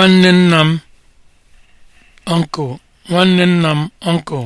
nwanne nna m uncle nwanne nna m uncle